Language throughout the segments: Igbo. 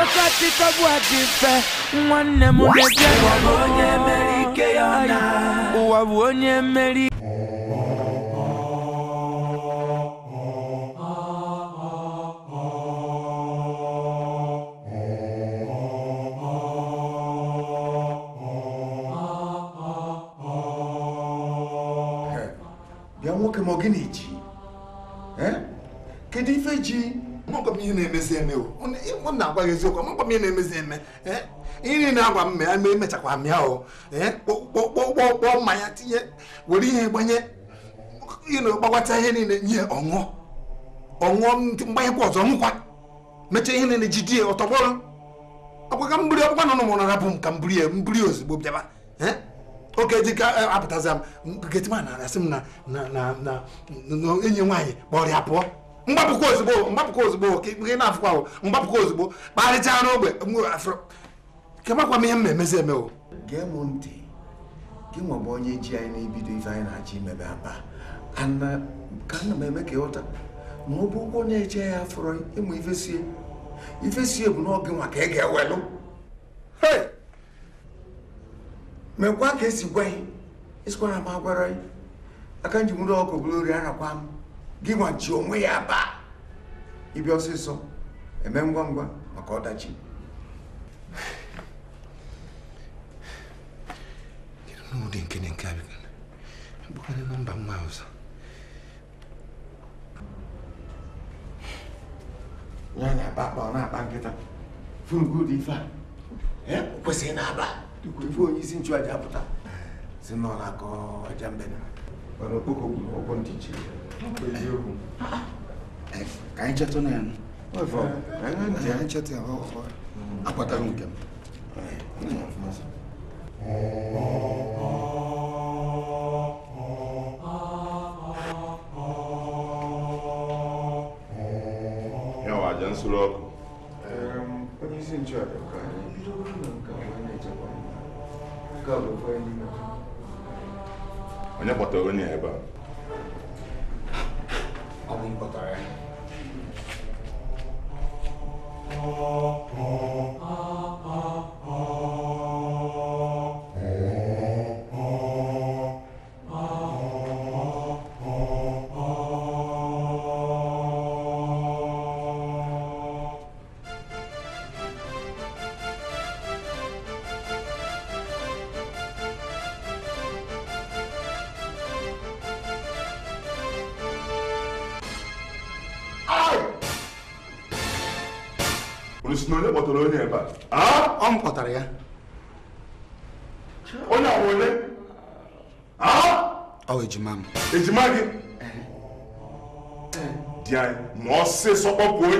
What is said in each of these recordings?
Ọsachikọgbu adị mfe nwanne m na-eje ụwa bụ onye mere ike nwoke ma ọ gị na-eji kedu ife ji mgbe ihe na-emezi eme o na-agwa gị eziokwu mgbe ihe na-emezi eme ihe niile agwa m ya mee mechakwa m ya o kpọkpọkpọ mmanya tinye were ihe gbanye gbagwata ihe niile nye ọṅụọ ọṅụọ mgbanyekwa ọzọ nkwa mechaa ihe niile jidie ọtọgbọrọ ọkwa mburi ọkpụkpa nọ n'ụmụ narapụ m ka m buri ya mburi ozugbo bịaba oke dịka apụtaza m getima na-arasị m na enyi nwaanyị kpọrọ ya pụọ mgbapụkwa ozugbo mgbapụkwa ozugbo ka na-afụkwa mgbapụkwa ozugbo kparịchaa n'ogbe kemakwa m ihe m na-emezi emewo gee m ntị gị nwa bụ onye ji anyị na-ebido ife anyị na-achọ imebe aba uh, ka ana m eme ka ịghọta ma ọ bụ ụgwọ na-eche ya afọrọ ịmụ ifesie ifesie bụ n'oge nwa ka ị ga-ewelụ mekwa ka esi gwa anyị esikwara m agwara anyị aka nji nwere ọkụ bụrụ ori arakwa m gị nwa ji onwe ya baa ịbịa ọsịsọ eme ngwa ngwa maka ọdachi n'ụdị nke na nke abịa bụkwanye na mba mma ọzọ ya na É, akpa ọ na-akpa nkịta furugodu ife a kwesịrị na-aba ife onye isi nchụaja pụta si na ọ na-akọ aja mbe na okpoko gburu ọgwụ o ji ya ka anyị chetụ na ya anyị chetụ ya akpatara nke m yawa aja nsuru ọkụ onye isi nchụaja ka anyị bidoro na nke onye na onye kpọtara onye ebe a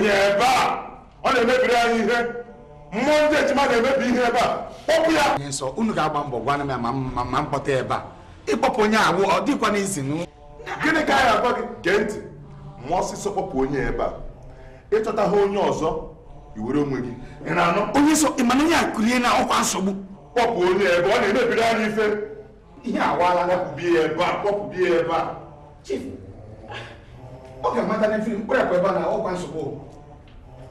onye ebe a ọ na-emebiri anyị ihe mmụọ ndị ejima na-emebi ihe ebe a kpọpụ ya nye nsọ unu ga-agba mbọ gwana m ya ma mkpọta ebe a ịkpọpụ onye awụ ọ dịkwa n'izi nụ gịnị ka anyị agwa gị gee ntị ma ọsịsọ kpọpụ onye ebe a ịchọta onye ọzọ iwere onwe gị ị na-anụ onye nsọ ịmana onye akụlie na ọkwa nsogbu kpọpụ onye ebe ọ na-emebiri anyị ife ihe awala kpọpụbi ya ebe a kpọpụbi ya ebe a ọ ga-amata n'efiri mkpụrụ akụ ebe a na ọkwa nsogbu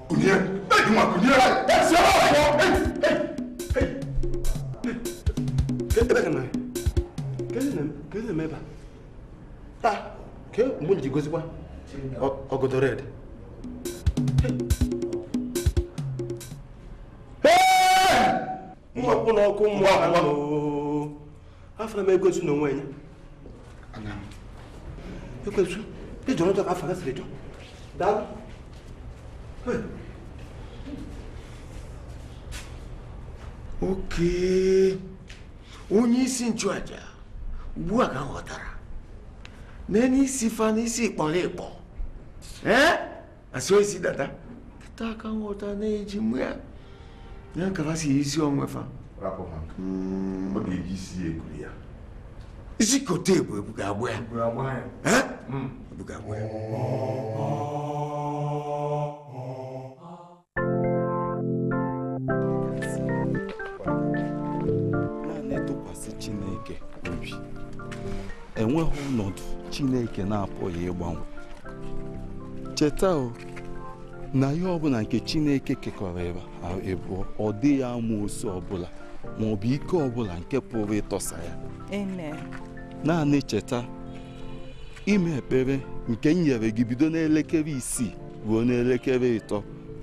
kùnìyẹ bẹ́ẹ̀ ni wọn kùnìyẹ. ẹ ṣe wá fọ. kébé kana kébé na kébé na mẹba ta ké mun jí gosi wa ọgọdọ rẹ dẹ. mmọkwụ n'ọkụ mmụọ afọ m egosi n'onwe ya ekwesu ịjọ ọjọọ afọ gasịrị jọ oke onye isi nchụaja ugbu a ka m ghọtara n'elu isi fa isi ịkpọrọ ịkpọ ee asị isi dada kịta ka nghọta na-eji mụ ya ya nkara si isi onwe fa isi kote ebu ebu ga-agbụ ya ebu ga-agbụ ya enweghị ọnọdụ chineke na-apụghị ịgbanwe cheta o na ihe ọbụla nke chineke kekọrọ ịbụọ e ọ dịghị ama osu ọbụla ma ọ bụ ike ọbụla nke pụrụ ịtọsa ya naanị cheta ime ekpere nke m nyere gị bido n'elekere isii ruo n'elekere ịtọ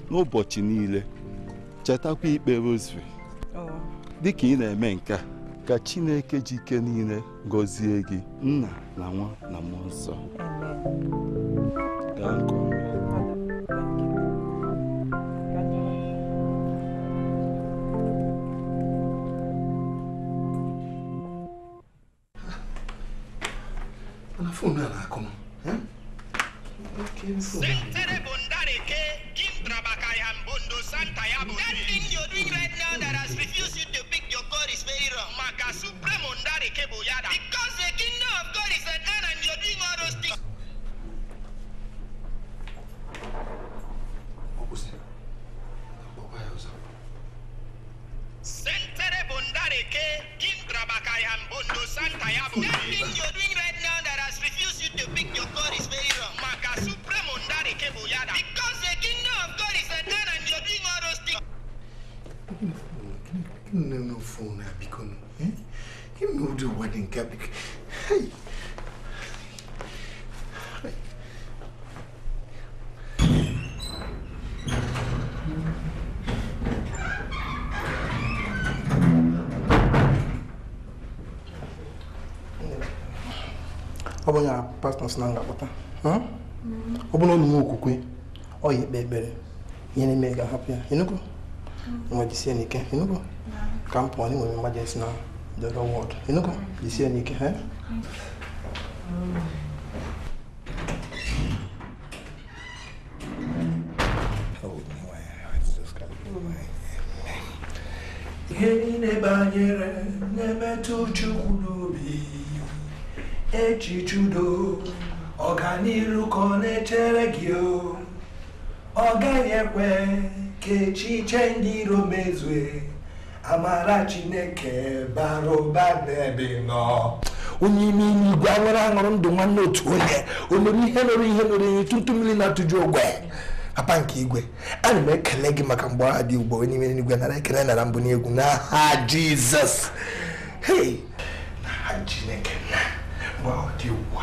n'ụbọchị niile chetakwa ikpe rosary oh. dịka ị na-eme nke ka chineke ji ike niile gọzie gị nna na nwa na mmụọ nsọ gaa nke ọma fonu a na-akụ m eh? na ngapụta ọ bụrụ na ekpere ihe ga-ahapụ ya mm. ka m pụọ niile banyere na-emetụ Chukwu echiche udo ọganiru ka ọ na-echere gị o ọ gaghị ekwe ka echiche ndị iro mezue amara chineke bara ụba n'ebe nọ onye ime ime igwe anwụrụ aṅụrụ ndụ nwanne otu onye o mere ihe mere ihe mere ihe tutu mmiri na-atụju ogwe papa nke igwe ana m ekele gị maka mgbe aha dị ugbo onye ime n'igwe nara ekele nara mbụ n'egwu n'aha jizọs hei chineke na gba ọdị ụwa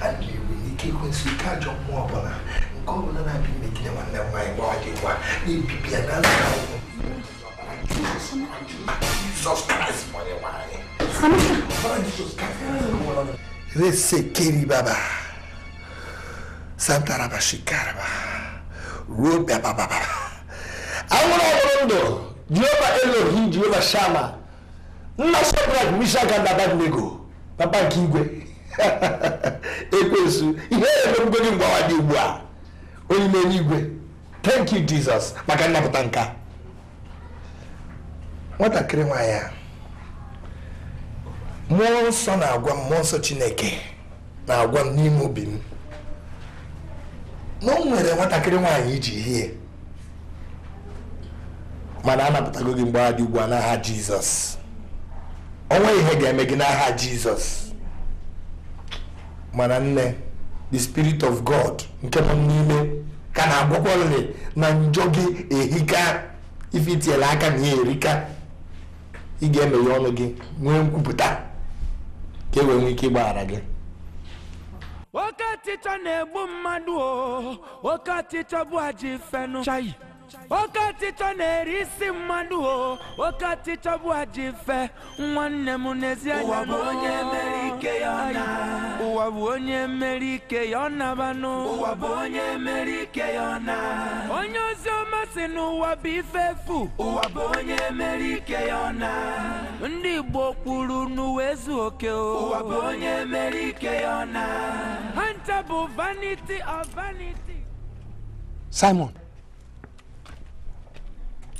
a na-ewe ike ekwensị ike ajọ mmụọ ọbụla nke ọbụla na-abịa imegide nwanne m nwaanyị gba ọdị ụwa na-ebibi ya na nta ụwa Jizọs Kraịst nwere nwaanyị resekeri baba santaraba shikaraba ruo babababa anwụrụ ọhụrụ ndụ jehova elohi jehova shama nna shadrak mishak na abednego papa nke igwe ekwensu ihe emerugo gị mgbawa dị ugbu a onye ime n'igwe thank you jesus maka nnapụta nka nwatakịrị nwanyị a mmụọ nsọ na-agwa m mmụọ nsọ chineke na-agwa m n'ime obi m na o nwere nwatakịrị nwaanyị iji hie mana anapụtago gị mgbawa dị ugbu a n'aha jizọs onwe ihe ga-eme gị n'aha jizọs mana nne the spirit of god nke nọ n'ime ka na-agbakwalị na njọ gị ehika ife aka na ihe erika ị ga-emeghe ọnụ gị nwee nkwupụta ka e wee nwee ike ịgbaghara gị oke ọchịchọ na-egbu mmadụ o oke ọchịchọ bụ ajọ ife chayi oke ọchịchọ na-eri isi mmadụ o oke ọchịchọ bụ aji nwanne m n'ezi onye mere ike ya na ụwa onye ozi ọma si n'ụwa bụ ife efu ndị Igbo kwuru n'uwe ezu oke ha ncha bụ vanity of vanity Simon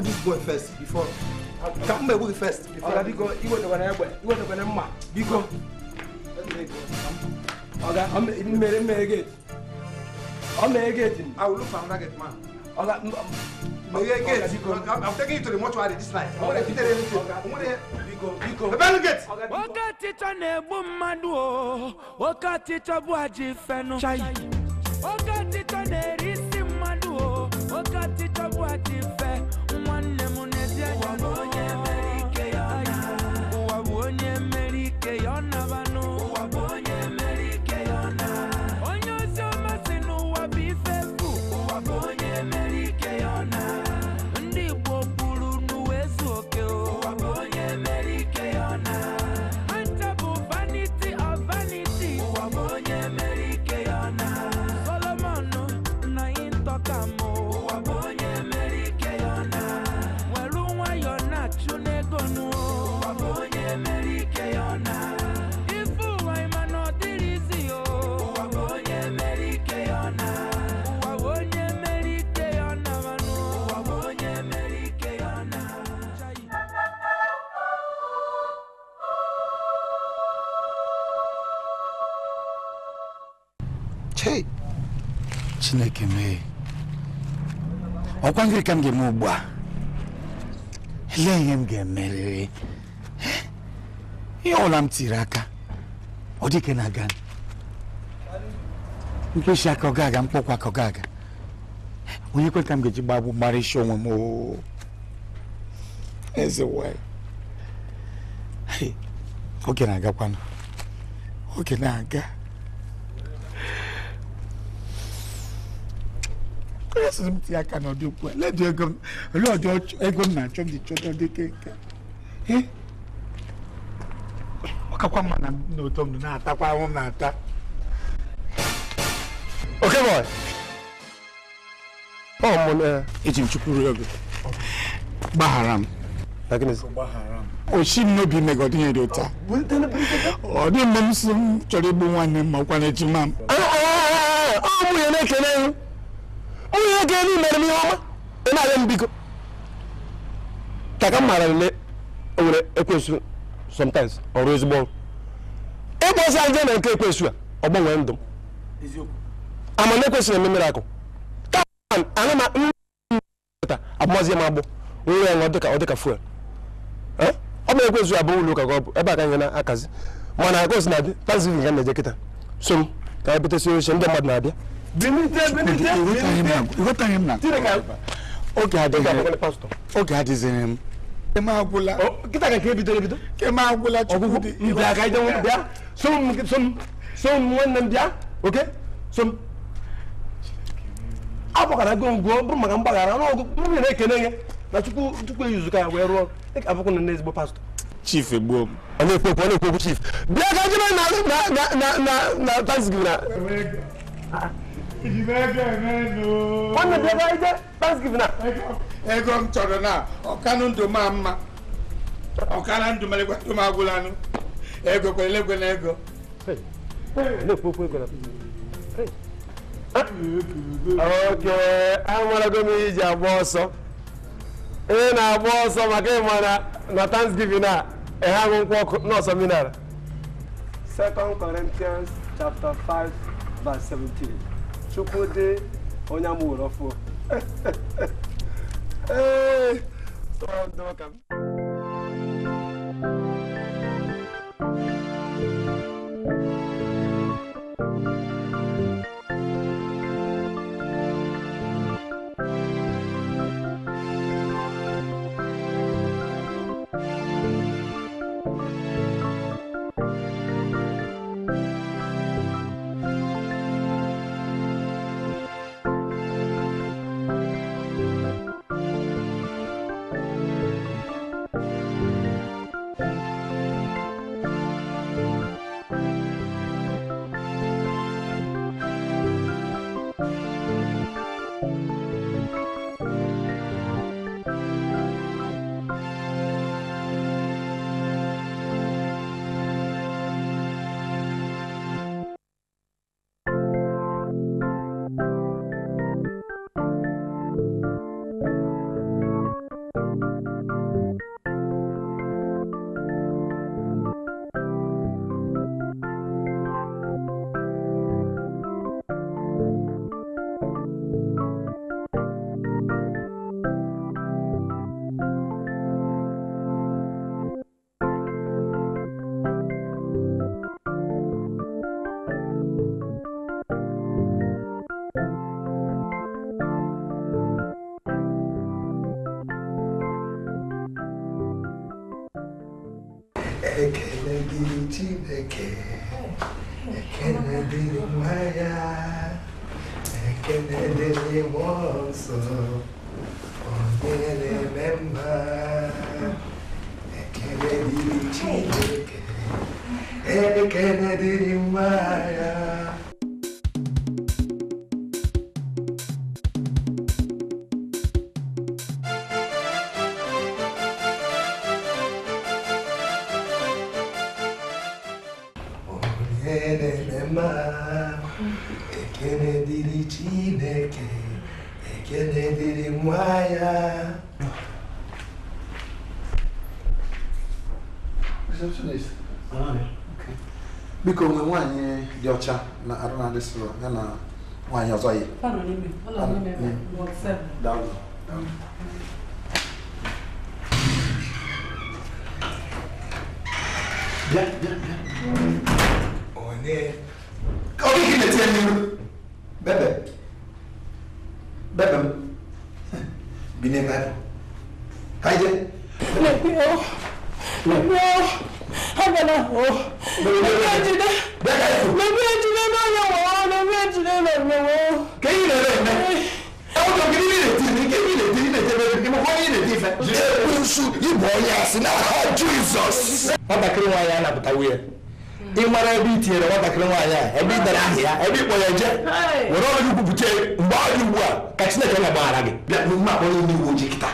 this boy first before. it first before. I'm will look for I'm taking you to the mortuary this night. I'm gonna fit everything. i to Okatichọ na-egbu mmadụ o, okatichọ bụ ajị fenụ. ọkwa ka m ga-eme ugbu a lee ihe m ga-emerịrị ihe ọla m tiri aka ọ dịke na aga mkpeshi aka ọ ga-aga mkpọkwa aka ọ ga-aga onye kwe ka m ga-eji gbagbu mara isi onwe m oo eze nwanyị oge na-agakwanụ oge na-aga esoro m ego na-achọ m ji dị ọ kakwa mma na na-atakwa ahụ m na oke bọị ọ eji m chukwu rie gbaghara m Oshi m n'obi mega dị ụta ọ dị mgbe m m chọrọ igbu nwanne m ma ọkwa na m ego elu mere m ihe ọma ị na-arịọ m biko ka ka m maara na o ekwesu ekwensu sometimes ọrụ ezigbo ọrụ ịkpọ ozi aje na nke ekwesu a ọ gbanwee ndụ m ama na ekwesịrị eme mere akụ taa ana ma nta abụmazi m agbụ nwere ya nwa dịka ọ dịka fuel ọ bụ ekwesu abụ ụlọ ụka ka ọ bụ ebe a ka nye na akazi mana agos na-adị tanzania ga na-eje kịta so m ka anyị bute bụtesi oche ndị mmadụ na-abịa ịghọtaghị oh. oh, oh, m na oge m m chief e e e chief nwanne bịa ebe ije thanksgiving na ego m chọrọ na ọkanụ ndụ ma mma ọkara ndụ mere gwatụ m agwụlanụ ego kwere na ego oke amarago m iji agba ọsọ ị na-agba ọsọ maka ịma na thanksgiving a ehe aṅụ nkwụ ọkụ n'ọsọ minara 2 Corinthians chapter 5 verse 17 chukwudị onye amụrụ ee tọọrọ Thank you. and then, oh, he can tell you ebe ịkpọ ya nje were ọrụ kwupụta mgbe ọ dị ugbu a ka chineke na-agbaghara gị bịa n'ime akpọrọ ndị uwe ojii kịta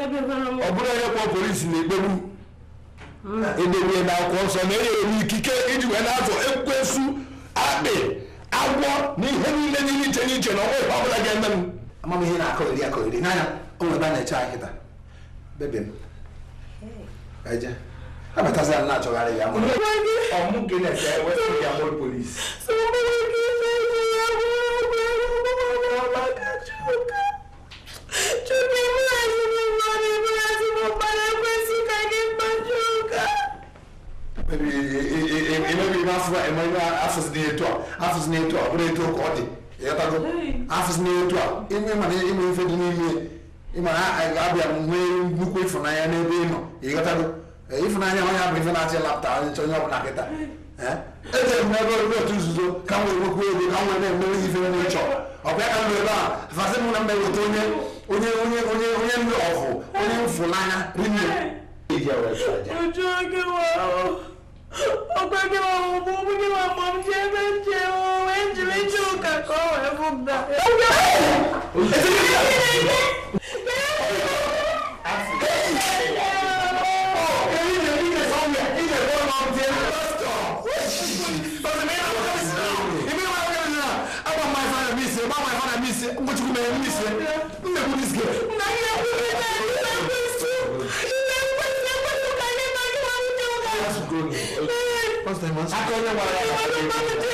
ọ bụrụ onye kpọọ polisi na-ekpegbu edebere hmm. na akwụkwọ nsọ na enye enwe ikike iji wee na-azụ ekwesu akpị agwọ na ihe niile niile iche n'iche na ọnwa ọ bụla ga-eme m amamihe na-akọgheri akọgheri n'anya o nwere ebe a na-eche anyị kịta bebe m eje abatazi na achọgharị ya ọmụ gị na-ese west india mol polis afụzi na etu a bụrụ etu ka ọ dị ịghọtago afụzi na etu a ime mana ịnwe ife dị n'ime ịmana abịa nwee nnukwu ịfụnanya n'ebe ị nọ ịghọtago ịfụnanya onye bụ ife na-achị lapụta onye onye ọbụla kịta ejere m n'ebe orire otu nzuzo ka m wee ego ka m na ife ọ ka m ebe a fasị m na mba eweta onye onye onye onye onye ndị ọfụ onye mfụnanya rinne gbà. Muchísimas gracias. Me pudiste. First time,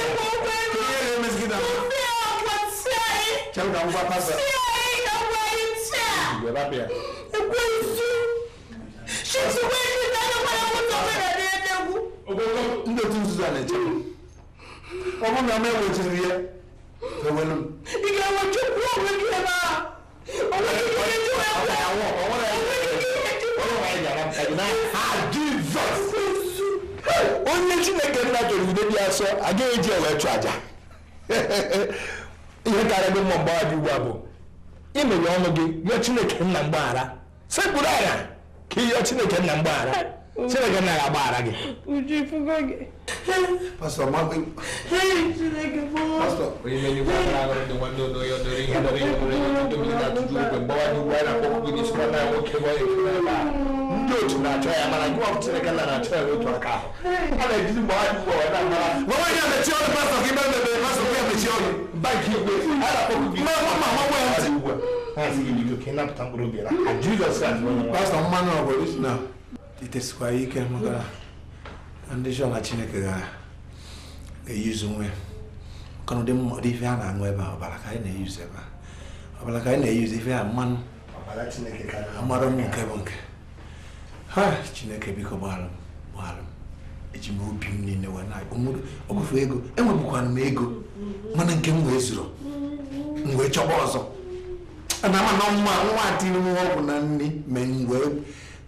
kyɛw na ngwa pasa sii na ngwa yi tia yɛba bia egu esu sisi wo esu na ne kɔla mo tɔ fɛ dade ɛdɛ gu. ogogo n bɛ tun sisan ne cɛ ɔmu na mɛ wo ti wiɛ fɛ wɛlɛm. ìgbà wo ju kú owó ju ɛ ma owó ju ju ɛ ju ɛ kú owó owó la yɛ ju ɛ ju owó la yɛ jara ɛdi na a jesus. onye chineke nna jọrọ ibe bi asọ agaghị eji ewe chụ aja ihe karịa gị mma mgbaghara ugbu a bụ imeghe ọnụ gị rịọ chineke nna mgbaghara sekpuru anya ka ị chineke nna mgbaghara Chineke nna na ndị nwanne ya a gị n'isi nwanne ya nwoke gwa ya a ka dịtesịkwa ike maka ndị chọla chineke ga-eyuzu nwe maka na ụdị mmadụ ife a na-aṅụ ebe a ọbara ka anyị na-eyuzu ebe a ọbara ka anyị na-eyuzu ife a mmanụ amara m nke bụ nke ha chineke biko gbaghara m gbaghara m eji m obi m niile wee na ọgwụfe ego enwebụkwana m ego mana nke m wee zuru m wee chọba ọzọ ana ama na mma nwa dị m ọgwụ na nri mee m wee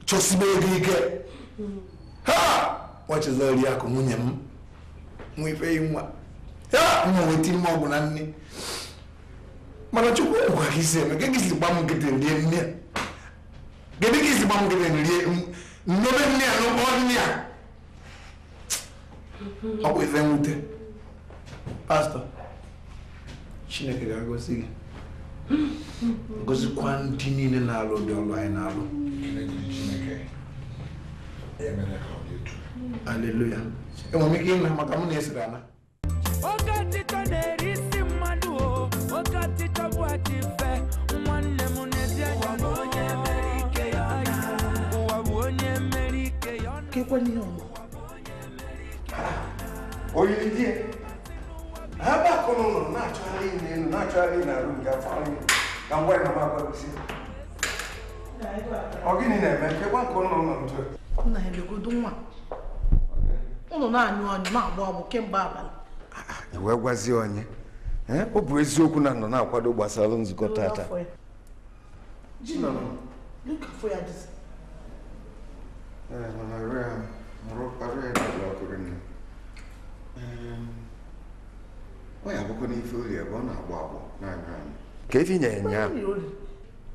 chọsibe ego ike ha nwachezori akụ nwunye m nwa ife nwa ya mma weta ime ọgwụ na nne mana chukwu gwa gị si eme gị si gba m nkịtị rie nne gịnị gị si gba m nkịtị rie nnobe nne ya n'ụkpọ nne ya ọ bụ ife nwute, pastọ chineke ga-agosi gị gozikwa ndị niile na-alụ ụdị ọlụ anyị na-alụ E Enwere m ike ịnwe maka m na-esiri ala. Oke ọtịtọ na-eri isi mmadụ o, oke ọtịtọ bụ adị mfe, nwanne m na-ezi anya onye mere ike onye mere ike ya ha gbakọ ụlọ na-achọgharị na-achọgharị n'arụ nke afọ ka ngwa ọ gịnị na-eme nkekwa nke ụlọ nọ ntu nna ya legodo nwa ụlọ na-anyụ anyụ anyụ na kemgbe abalị ah, ah, wee gwazie onye ọ bụ eziokwu na nọ na-akwado gbasara nzukọ tata ka ife nye ya ụnyaahụ.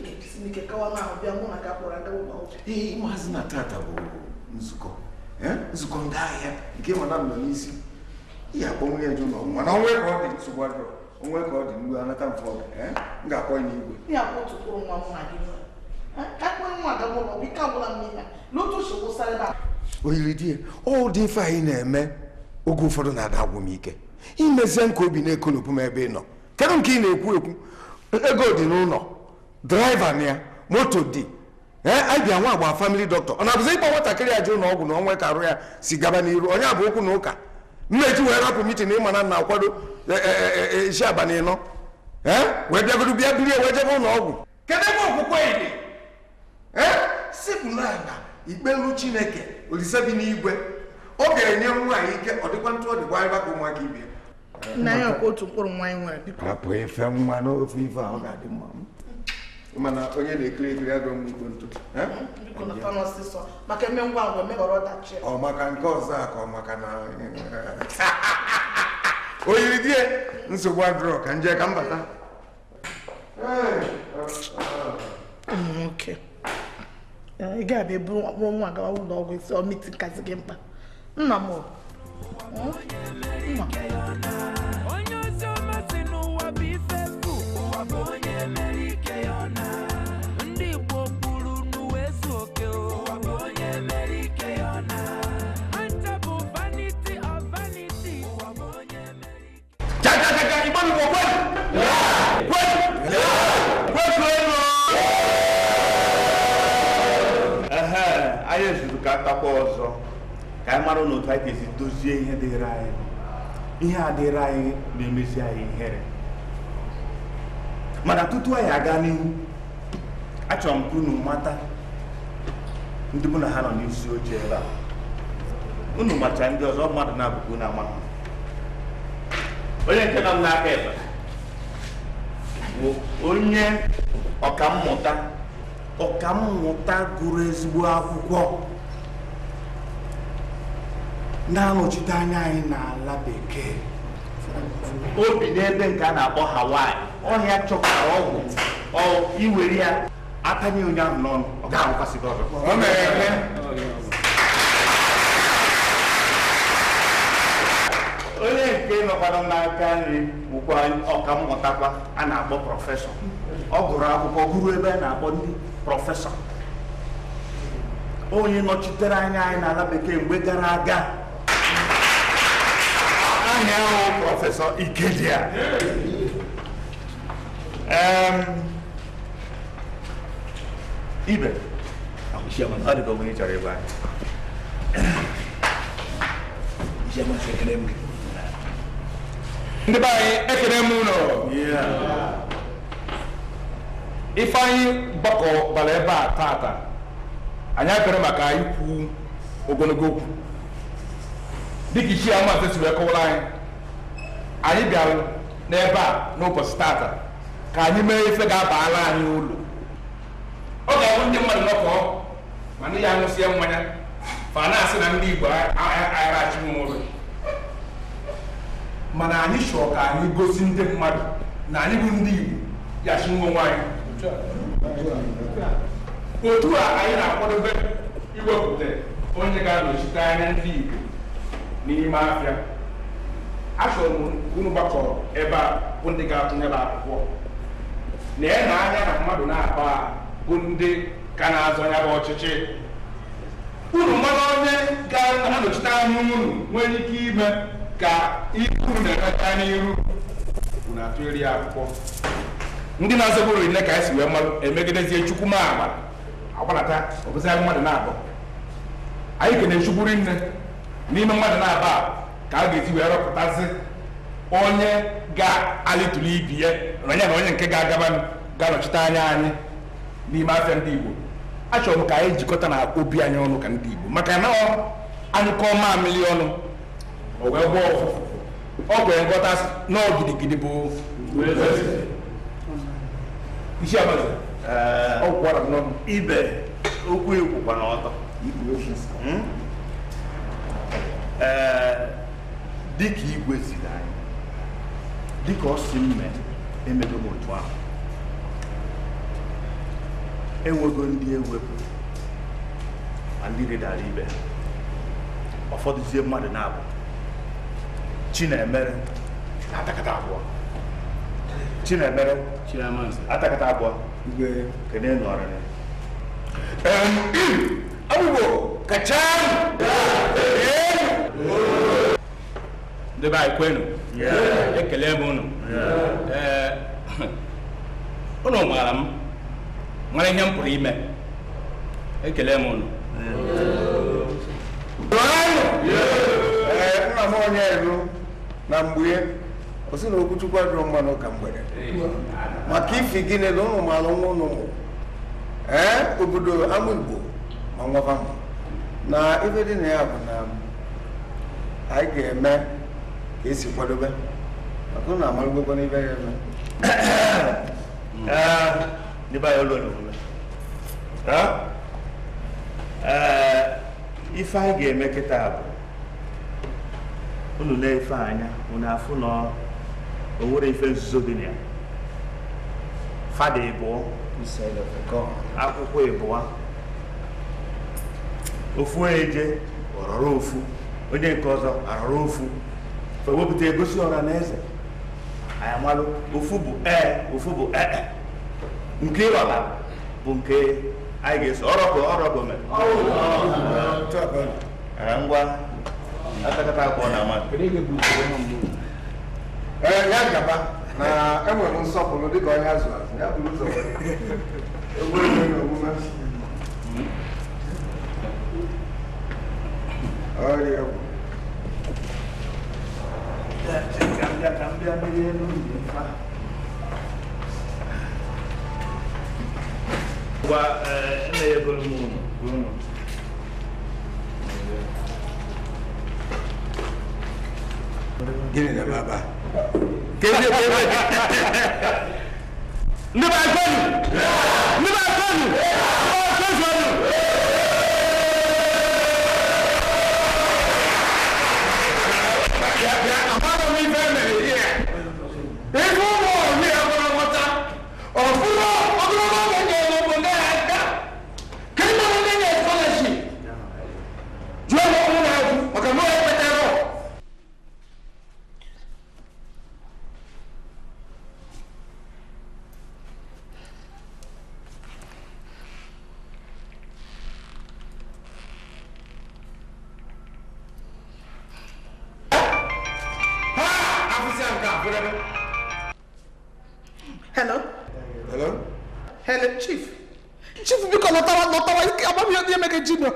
ee maazị eh, eh, eh. na tata bụ nzukọ nzukọ ndị ahịa nke mana nọ n'isi ya na onwe ka ọ dị nsogbu adịrọ onwe ka ọ dị mgbe anata mfe ọgụ m ga-akpọ ya n'igwe oyiri di ya ọ dị ife anyị na-eme oge ụfọdụ na-ada agwụ m ike imezie m obi na m ebe ị nọ kedu nke ị na-ekwu ekwu ego dị n'ụlọ draịva na ya moto dị abịa nwa agba famili dọkịta ọ na-abụzi ịkpọ nwatakịrị ajụ na ọgwụ na ọnwa ka arụ ya si gaba n'iru onye abụ okwu na ụka mmeji wee rapụ mitin ịma na na-akwado e, e, e, isi abalị ịnọ wee bịagoro bịa biri ewe jebe ụlọ ọgwụ kedu ebe okwukwe dị sipụla na ikpelu chineke olise bi n'igwe ọ ga-enye nwaanyị ike ọ dịkwa ntụ ọ dịkwa ịba ka ụmụaka ibie nna ya otu mkpụrụ nwaanyị nwere biko ife nwa n'ofe ife a ga-adị mma mana onye na-ekiri ekiri agụ m ntụ eh? ọ maka nke ọzọ a ka ọ maka na o eh, eh, oyiri di nsogbu agụrọ ka nje ka mbata. bata nwoke mm, ị ga-abịa ebu ọkpụrụ nwa ụlọ ọgwụ isi ọmiti nkazi gị mkpa nna m anyị ezurụka atakwa ọzọ ka anyị mara n'otu anyị ga-esi dozie ihe dịịrị anyị ihe a dịịrị anyị na-emesi anyị ihere mana tutu anyị aga n'ihu achọrọ m ka unu mata ndị mụ na ha nọ n'isi oche ebe a unu macha ndị ọzọ mmadụ na-abụkwu na amara onye nke nọ n'aka ebe bụ onye ọkammụta ọkammụta gụrụ ezigbo akwụkwọ na-anọchite anya anyị n'ala bekee obi n'ebe nke a na-akpọ Hawaii ọhịa chọkwara ọgwụ iwere ya atanye onye ahụ n'ọnụ ọ ga gị ọkwanụ n'aka nri bụkwa ọka mmụtakwa a na-akpọ prọfesọ ọ gụrụ akwụkwọ gụrụ ebe a na-akpọ ndị prọfesọ onye nọchitere anya anyị n'ala bekee mgbe gara aga ahịa ahụ prọfesọ Ikedia ibe ọ dịka onye chọrọ anyị ndị be anyị ekene m ụlọ ifeanyị gbakọ bara ebe a tata anyị abịara maka ikwu ogologo okwu dịka ichie amansị si wee kọwara anyị anyị bịara n'ebe a n'ụbọchị tata ka anyị mee ife ga-abara anyị ụlọ ọ ga-abụ ndị mmadụ nọkọ ma ndị ya ṅụsịa mmanya fa na-asị na ndị Igbo aghachiwụ ụlọ mana anyị chọọ ka anyị gosi ndị mmadụ na anyị bụ ndị Igbo yachi nwa nwaanyị otu a anyị na-akwadobe iwepụta onye ga-anọchite anya ndị Igbo n'ime afịa achọrọ m unu gbakọrọ ebe a bụ ndị ga-atụnyere akwụkwọ na ị na-anya na mmadụ na-akpa bụ ndị ka na-azọ ya bụ ọchịchị unu mmadụ onye ga-anọchite anya unu nwere ike ime ka ihu na n'ihu bụ na-atụgharị akwụkwọ ndị na-azọbụrụ nne ka esi wee mmadụ emegidezie chukwu ma ama agbanata ọbụzịa mmadụ na-abụ anyị kene chukwuri nne n'ime mmadụ na-aba ka a ga-esi wee rọpụtazi onye ga-alitụli ibi ya onye na onye nke ga-agaba ga-anọchite anya anyị n'ime afịa ndị Igbo achọrọ m ka anyị jikọta na obi anyị ọnụ ka ndị Igbo maka na anyụkọ mamịlị ọnụ ọ̀wẹ́ bọ̀ ọgbẹ̀ ńkọ́tà náà gidigidi bo iṣẹ́ àbálẹ̀ ọkọ̀ ara náà ibẹ̀ okwu ekwu kwa n'ọtọ dịka igwe ziri anyị dịka ọ si mme emego m otu ahụ enwego ndị ewepụ ma ndị rịdara ibe ụfọdụzie mmadụ na-abụ Chinemere atakata abụọ Chinemere atakata abụọ kedu ị nọrịrị abụbo kacha ndị be anyị kwenu ekele m unu ee unu maara m mara ihe m pụrụ ime ekele m unu nna m onye elu na mgbe o si na okwuchukwu adịrọ mma n'ụka mgbede maka ifi gịnị na ụnụ maara nwa ụnụ mụrụ ee obodo ama igbo ma nwafa eh, mma na ife dị na ya bụ na anyị ga-eme ka esi kwadobe maka ụnụ amarụgbekwa n'ibe ya eme ife anyị ga-eme kịta bụ unu na-efe anya unu afụ na o nwere ife nzuzo dị na ya fada ịbụọ akwụkwọ ịbụọ ofu eje ọrọrọ ofu onye nke ọzọ arọrọ ofu ewepụta egosi ọra na eze anyị amalụ ofu bụ ee ofu bụ ee e. nke ịrọla bụ nke anyị ga-eso ọrọgọ ọrọgọ ngwa akakata akọ na ama ee ya eh, gaba na enwere nsọpụrụ dịka onye azụ azụ ya bụrụ ụzọ egwuregwu na omume ọrịa egwu gwa nne ya bụrụ m Gine dè baba Gine dè baba Li bakon? Li bakon? Li bakon? chief chief biko lọtawa lọtawa ọba mi ọdún yẹn mẹkẹ jìnnà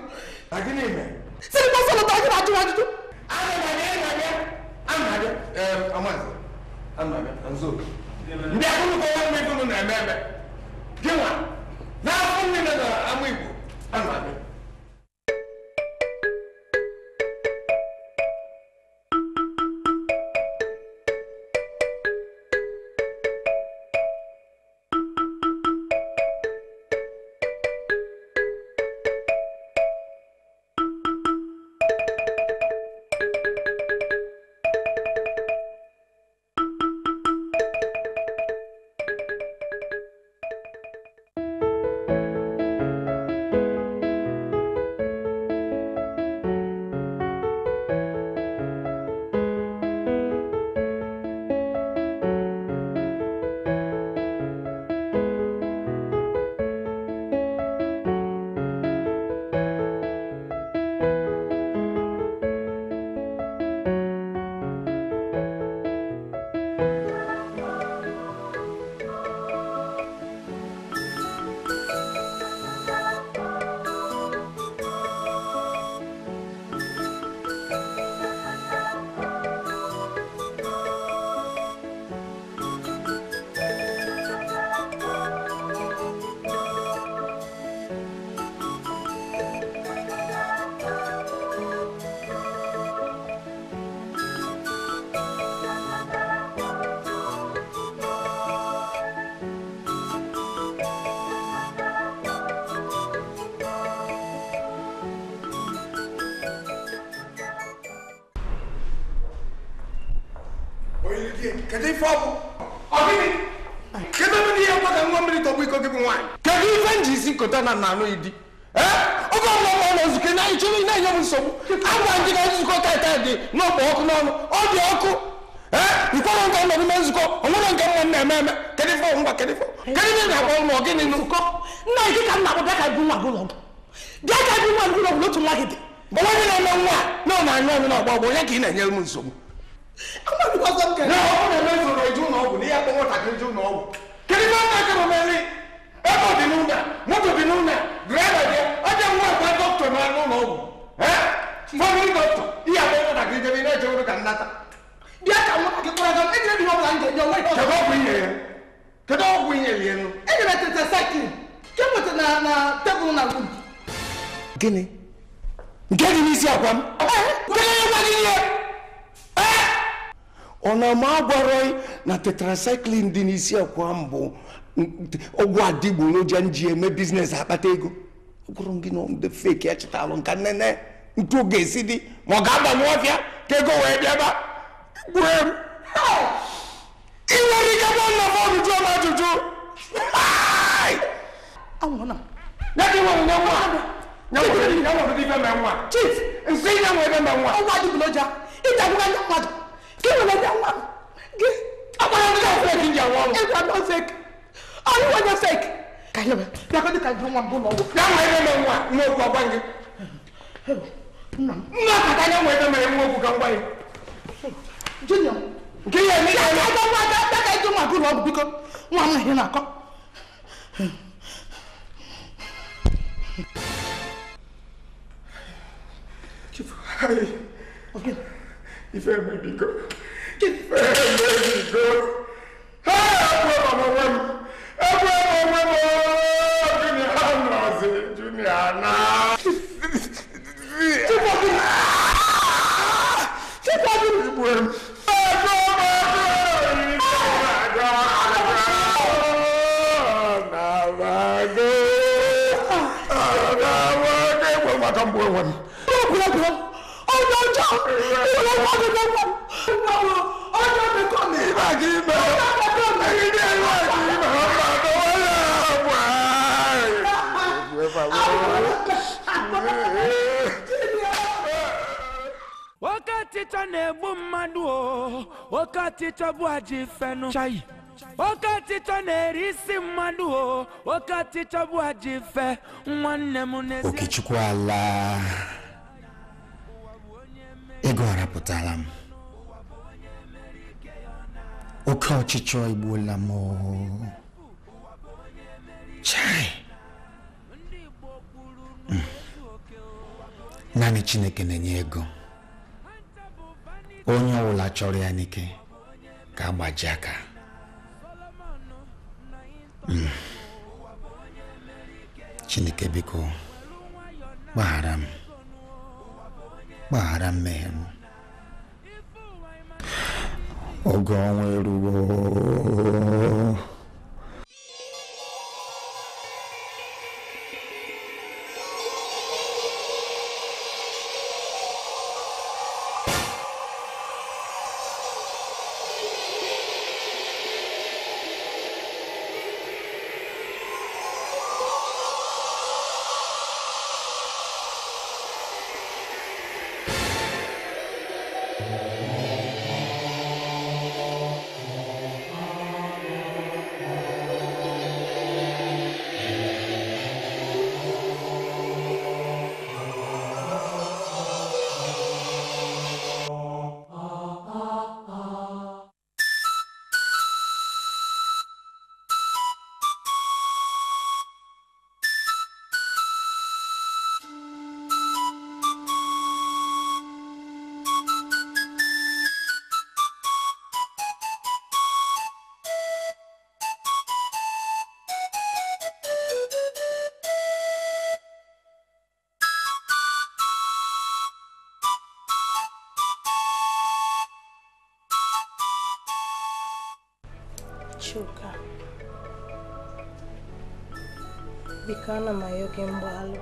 na nanu yi di ɛ o b'a lɔ n'a yi n'a yɛ mu sɔmu a b'a jigin a zikɔ k'a t'a di n'o bɔ ɔku n'ɔnu o di ɔku ɛ nkɔ n'o ka nɔ ni mɛ zikɔ o n'o ka mɔ nɛ mɛ mɛ kɛlɛ fɔ na bɔ mɔ kini nu. kɔ n'a yi ka ka dun wa dun lɔ bɛɛ ka dun wa dun lɔ wolo tun laki di. bɔbɔ mi na n'o wa na ɲɔ na bɔ bɔ na ɲɛ mu ka sɔrɔ n'a fɔ ko na mɛ zoro ju n'o kun n'i y'a kɔngɔ ta k'i ju n'o kun. kɛlɛ b'a ta kɛ ata bịa ka nwata gị kpọrọ gaa ejire dị ọbụla m ga-enye onwe kedu ọgwụ inye ya kedu ọgwụ inye ya enu enyere tete sakin ke na na tebụl na wud gịnị nke dị n'isi akwa m ọ na ma agwarọ na tetracycline dị n'isi akwa m bụ ọgwụ adịgboroja m ji eme biznes akpata ego gụrụ gị na ndị feki echetarụ nka nnene ntu ga-esi dị ma ọ ga-agbanwe ọfịa kego wee bịa ba gbue m ị nwere ike gba nna m ọjụjụ m ajụjụ anwụna ya ka ịnwere nye nwa nyanwụdị ife mee nwa chief nsị nyanwụ ebe mee nwa ọgwụ adịgboloja ịta agwụga ndị mmadụ ka ị nwere nye nwa gị agbara ndị ahụ fek ndị anwụ ọrụ ịgwa nọ nakatanya nweta mere nwa okwu ka ngwa ya nke ihe eme ya ya ngwa aka aka ịtụ nwa gụrụ ọgwụ biko nwa m ihe na-akọ ife eme biko ife eme biko ha ekwe m onwe m ekwe m onwe m junior nọzi junior naa Tipọ́tì Tipọ́tì ìbò ẹ̀rù. Ẹ̀jọ̀ ọmọ ẹ̀jọ̀ ìrìnàjò àjọ àgbàdo. Àgbàdo ẹgbẹ́ wọn kan bọ̀ wọn. Lọ́kùnrin ọjọ́ ọjọ́ ìwọ̀n wọn ni wọ́n wọ̀. Ọjọ́ mi kọ́ mi. Ìbàdí bẹ̀rẹ̀. Ọjọ́ mi kọ́ mi. Ìdí ẹ̀rọ ìdí bẹ̀rẹ̀. Ọjọ́ mi kọ́ mi. ọchịcha na-egbu mmadụ o oke ọchịcha bụ ajị fenụ chai oke ọchịchọ na-eri isi mmadụ o oke ọchịcha bụ ajị fe nwanne m n'ezi okechukwu ala ego arapụtala m oke ọchịchọ egbuola m chai hmm. naanị chineke na-enye ego onye ọbụla chọrọ ya n'ike ka agbaji aka hmm. chineke biko gbaghara m gbaghara mmehie m oge ọnwa eruo shuka biko ana m ayọ gị mgbalụ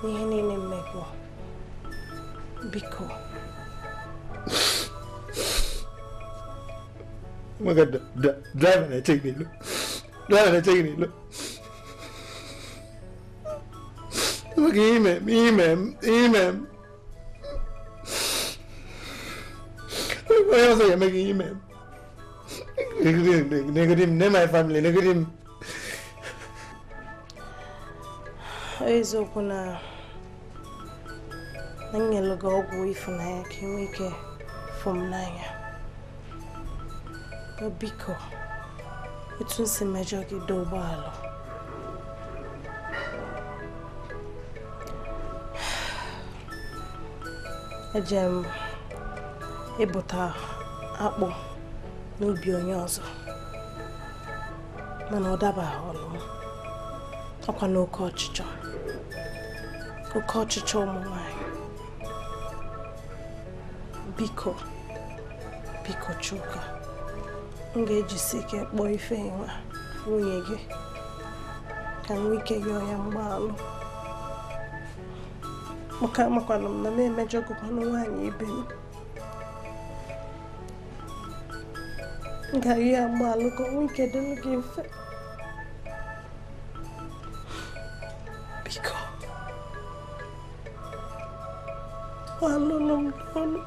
n'ihe niile mmegbu biko maka draiva na-eche gị n'ilo draiva na-eche gị n'ilo maka ime m ime m ime m onye ọzọ ga-eme gị ime m Negative, negative, ne my family, negative. Oyeziokwu na na nyelu gị ọgwụ ịfụnanya ka ị nwee ike fụ m n'anya biko etu m si mejọ gị dị ụgbọala eje m ịbụta akpụ n'obi onye ọzọ mana ọ dabaghị ọnụ ọkwa n'oke ọchịchọ oke ọchịchọ ụmụ nwanyị biko biko Chuka m ga-ejisi ike kpọọ Ifeyinwa nwunye gị ka m nwee ike yọọ ya mgbaalụ maka amakwana m na m emejọgokwana nwaanyị ibe m nga yiya mbaalu ko un kede liggéey fe mbiko mbaalu lom noonu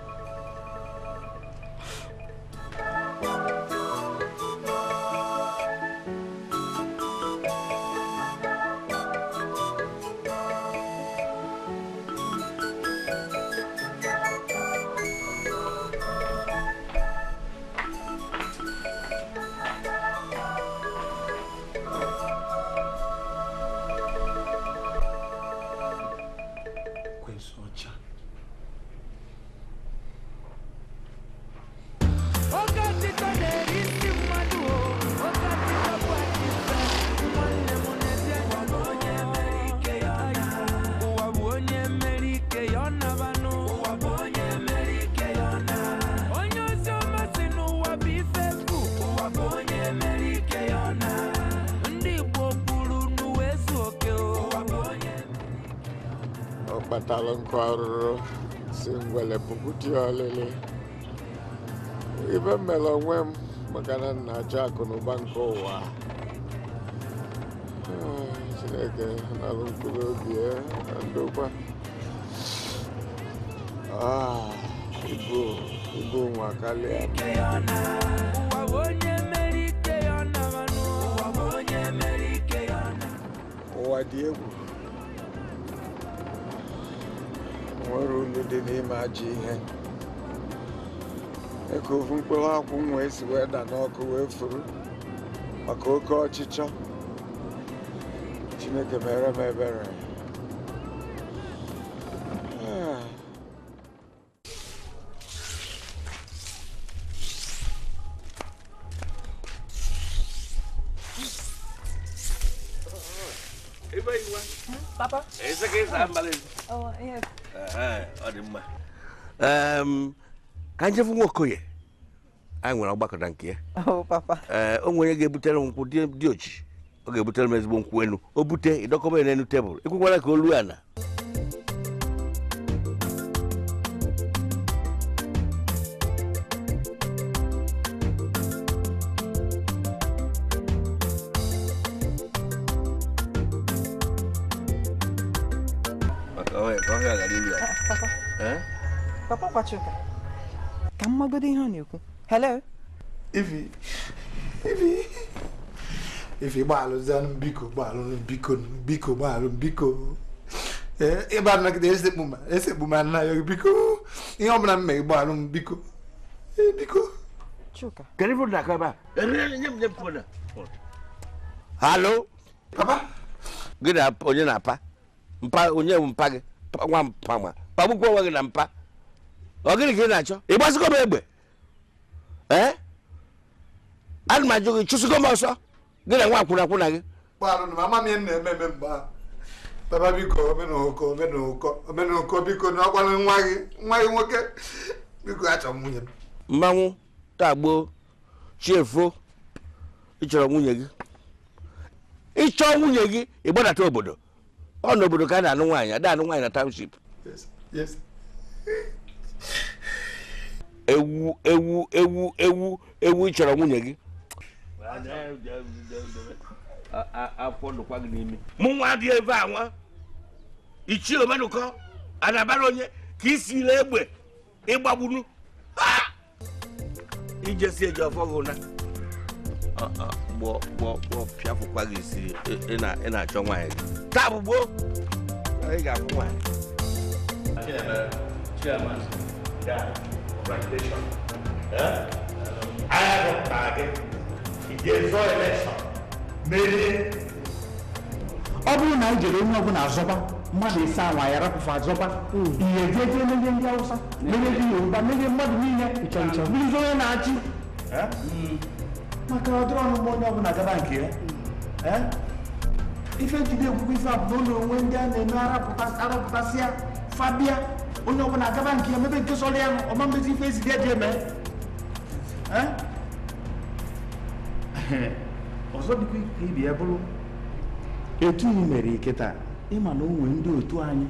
dị ọlịlị ibe mere onwe m maka na m na-achọ akụ na ụba nke ụwa chineke eh, nalụ mkpụrụ obi na ndokwa ah, ibu ibu nwa karịa ụwa dị egwu nwere olu dị n'ime ajọ ihe eke ofu mkpụrụ akwụ m esi wee da n'ọkụ wee furu maka oke ọchịchọ chineke mere m ebere ka anyị jefu nwa okoye anyị nwere ọgbakọ na nke ya ee o nwere ga-ebutere m nkwụ dị ochi ọ ga-ebutere m ezigbo nkwụ enu o bute ịdọkọba ya n'elu tebụl ekwekwara ka o ana Papa, ka mmagodo ihe ọ na-ekwu hello ife ivi ivi gbaalụzanụ biko mbiko biko biko gbaalụ mbiko ịba e, e, nagide esekpu ma esekpu ya biko ihe ọbụla m mere gbaalụ m biko e, biko Halo. onye na Mpa onye mpa gị? Nwa mpa nwa. onwe gị na mpa. ọ gịnị ka ị na-achọ ị gbasịgo m egbe ee ana m ajụ gị chụsịgo m ọsọ gị na nwa akwụna akwụna gị baba biko omenụkọ omenụkọ omenụkọ biko na ọgwala nwa gị nwa gị nwoke biko achọ m nwunye m mmanwụ taa gboo chiefo ịchọrọ nwunye gị ịchọọ nwunye gị ịgbadata obodo ọ n'obodo ka a na-anụ nwaanyị ada anụ nwaanyị na township yes yes ewu ewu ewu ewu ewu ị chọrọ nwunye gị mụ nwa dị ebe a nwa ichie omenụkọ anabara onye ka isi ile egbe ịgbagburu ijesi eji ọfọ gị ụna gbọ pịafụkwa gị isi ị na-achọ nwaanyị gị taa bụ gboo ị ga-akwụ nwaanyị that congratulations merie ọ bụrụ na ijere jere onye ọbụla azọba mmadụ ise ya rapụfụ azọba hmm. ihe jeje merie ndị awụsa merie ndị yoruba merie mmadụ niile bụrụzi onye na-achị maka ọdịrị ọnụmụ onye ọbụla gaba nke ya hmm. ife njide egwugwu ife onwe ndị a na-eme arapụtasịa fabia onye ọbụla agaba nke ya mebe nke sọrọ ya ọma mmezi ife ezide eji eme ọzọ dịkwa ka ibi ya bụrụ etu ị mere ike taa ịma na o nwee ndị otu anyị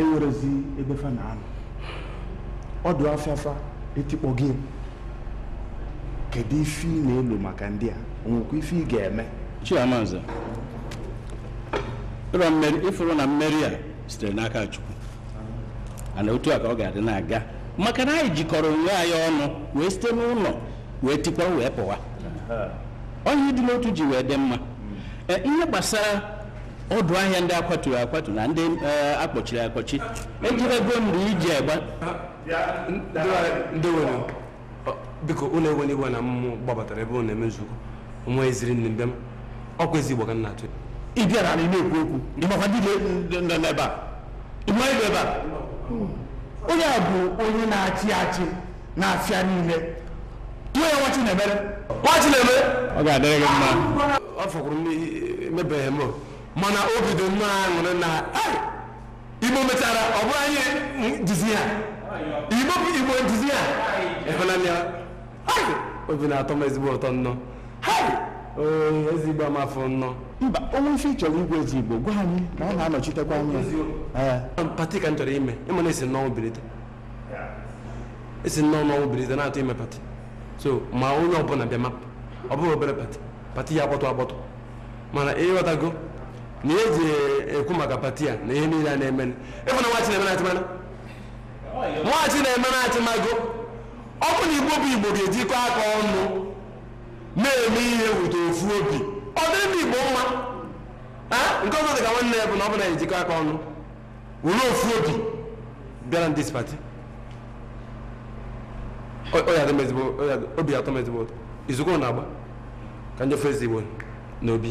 enwerezi ebe fa na anụ ọdụ afịafa etikpọ gị kedu ife ị na-elu maka ndị a onwekwa ife ị ga-eme chiamanza ịfụrụ na mmeri a sitere n'aka chukwu ana otu a ka ọ ga-adị na-aga maka na anyị jikọrọ onwe anyị ọnụ wee site n'ụlọ wee tikwa wee pụwa onye dị n'otu ji wee dị mma e, ihe gbasara ọdụ ahịa ndị akwatu akwatu na ndị e, akpọchiri akpọchi ejirego mgbe iji egba ndị nọ onye a bụ onye na-achị achị na afịa niile tụọ ya nwa Chinemere nwa ọ ga-adịrị gị mma ọ fọkwuru emebeghị m mana o bido nnọọ aṅụrị na Igbo mechara ọ bụrụ anyị njizi ha Igbo bụ Igbo njizi ha ịhụnanya obi na-atọ m ezigbo ụtọ nnọọ ezigbo amafọ nnọọ mba onwe ife chọrọ igwe ezigbo gwa anyị ka ọ na-anọchitekwa anya pati ka m chọrọ ime ịma na esi nnọọ birite esi nnọọ n'ọnwụ birite na-atụ ime pati so ma onye ọbụla bịa mapụ ọ bụghị obere pati pati ya agbọtọ agbọtọ mana ịghọtago na eji ekwu maka pati a na ihe niile a na-eme ịfụ na nwachi na-eme na-achịmana nwachi na-eme na-achịmago ọ bụ na igbo bụ igbo ga-ejikọ aka ọnụ na-eme ihe wụta ofu obi ọ dị ndị Igbo mma nke ọzọ dị ka nwanne ya bụ na ọ bụ na ejikọ aka ọnụ were ofu obi bịara ndị spati obi atọ mezigbo izugbo na agba ka njọ fezigbo na obi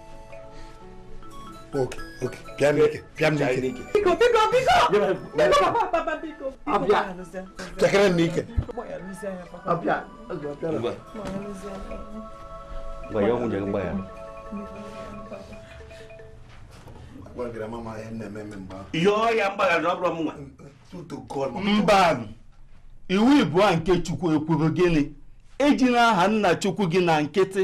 Ok, ok. Bịa n'ike. Bịa n'ike. Biko, biko, biko. Biko, papa, biko. Abịa. Chekere n'ike. ya nwunye ngwa ya. Gwagara mama Mba iwu ịbụọ nke Chukwu ekwuru gịnị ejila aha nna Chukwu gị na nkịtị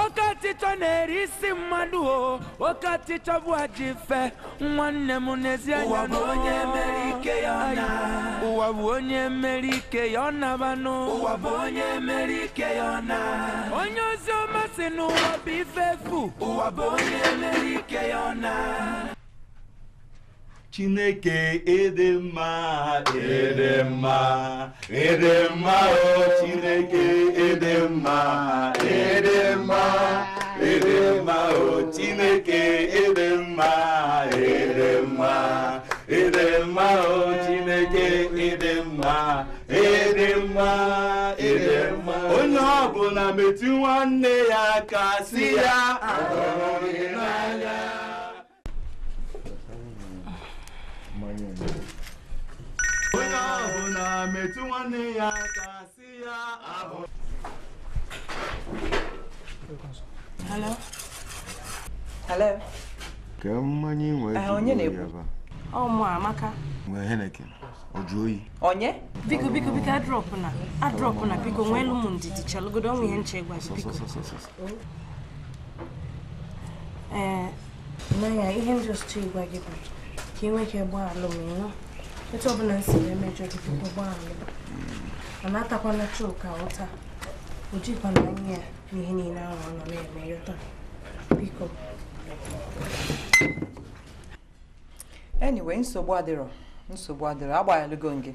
oke ọchịchọ na-eri isi mmadụ o oke ọchịchọ bụ ajọ ife nwanne m n'ezi anya na onye mere ike ya na ụwa bụ onye mere ike ya ọ nabanụ ụwa bụ onye mere ike ya na onye ozi ọma si n'ụwa bụ ife efu ụwa bụ onye mere ike ya ọ Chineke ịdị mma ịdị mma mma o Chineke ịdị mma ịdị mma mma o Chineke ịdị mma ịdị mma mma o Chineke ịdị mma ịdị mma mma onye ọ bụla metụ nwanne ya aka si ya ya metụ nwanne ya aka si ya ahụ Ka mmanya nwere eh, ike onye na-ekwu? Ọ mụ Amaka. Nwee Heneken. Ọ jụ oyi. Onye? Biko biko biko adrọp na adrọp na biko nwee elu m ndidi chalụgodo ọnwụ ihe nche gwazi biko. Ee, eh, naya ihe m jụrụ ịgwa gị bụ ka ị nwee ike gbaa alụm etu ọbụla si wee mejọ gbaala atakwana chuka ụta ojikwana anya ya n'ihe niile ahụ ọ nọ na-eme yọta biko anyway nsogbu adịrọ nsogbu adịrọ agbaghalụgo nge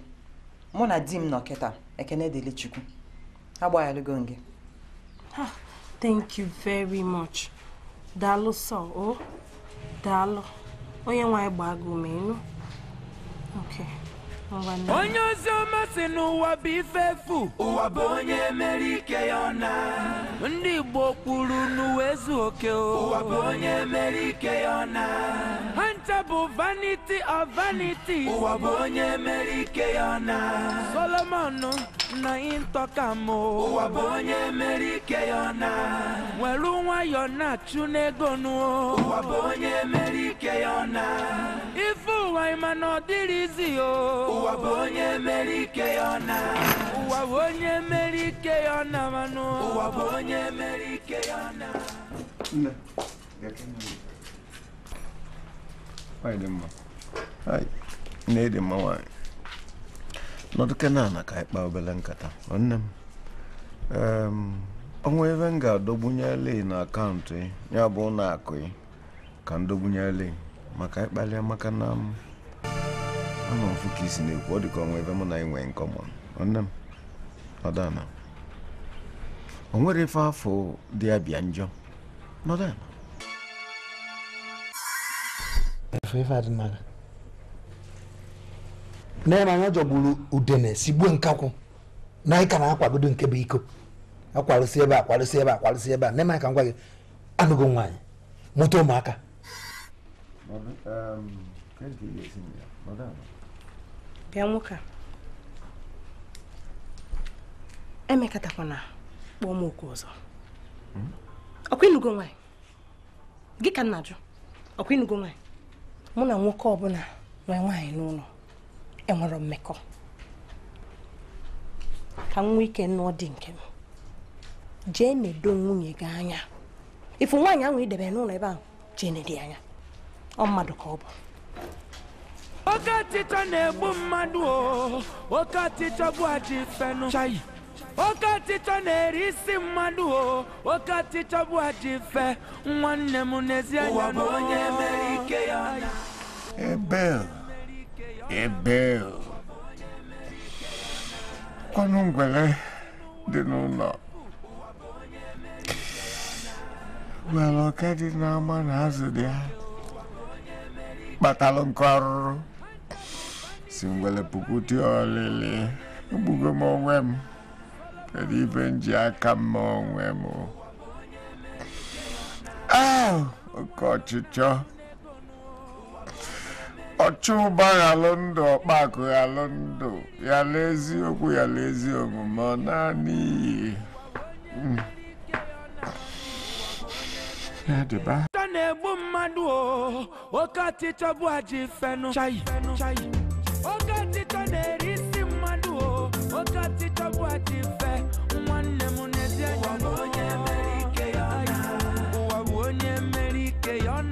mụ na di m nọ kịta ekene dịrị chukwu agbaghalụgo nge. thank you very much daalụ sọ o daalụ onye nwe anyị gbaa gị onye ozi ọma si n'ụwa bụ ife efu ụwa bụ onye mere ike ya ọna ndị igbo kwuru n'uwe ezu oke o ụwa bụ onye mere ike ya ọna ha ncha bụ vanity of vanities. ụwa bụ onye mere ike ya ọna solomon na ịntọkam ụwa bụ onye mere ike ya ọna nwere nwayọ na-achụ n'ego nụ ụwa bụ onye mere ike ya ọna ụwa ịma mana ọ dịrịzi o ụwa bụ onye mere ike ya na ụwa bụ onye mere ike ya na mana ụwa bụ onye mere ike ya na nne nwaanyị dị mma nne dị mma nwaanyị nọdụ kenana ka anyị kpaa obere nkata nwanne m ọnwa ebe m ga-adọgbunyela na akaụntụ ya bụ ụlọ akụ ka ndọgbunye dọgbunyela maka ịkpali maka na ama um, mfụ ka isi na-ekwu ọ dịka ọnwa ebe mụ na ị nwee nke ọma nne m nọdana o nwere ife afọ dị ya bịa njọ nọdana na-eme anya jọgburu udene si gbuo nkakwụ na anyị ka na-akwagodo nke bụ iko akwarụsi ebe akwarụsi ebe akwarụsi ebe a na-eme ka m gwa gị anụgo nwaanyị mụta ụmụaka bịa nwoke a emekọtakwana kpọọ m okwu ọzọ hmm? ọkwa ịnụgo nwaanyị gị ka nna jụ ọkwa ịnụgo nwaanyị mụ na nwoke ọbụla nwee nwaanyị n'ụlọ enwere mmekọ ka m nwee ike nụọ dị nke m jee nedo nwunye gị anya ifu nwaanyị ahụ idebe n'ụlọ ebe ahụ jee nedi anya ọ mmadụ ka ọ bụ oke ọchịchọ na-egbu mmadụ o oke ọchịchọ bụ ajọ chayi oke ọchịchọ na-eri isi mmadụ o oke ọchịchọ bụ ajọ nwanne m n'ezie ya na onye mere ike ya ebel ebel ọnụ ngwere dị n'ụlọ nwere ọka dị n'ama na azụ dị ha kpatalụ nke ọrụrụ si ngwele puku dị ọlịlị egbugo m onwe m kedu ibe m ji aka m onwe m oke ọchịchọ ọchụ ụba ghalụ ndụ ọkpakụ ghalụ ndụ yala eziokwu yala ezi omume ọ naanị iyi hmm. de bu mmadụ o oke ọchịchọ bụ aji fenu chai oke ọchịchọ na-eri isi o oke fe nwanne munezi ya ezi ụwa bụ onye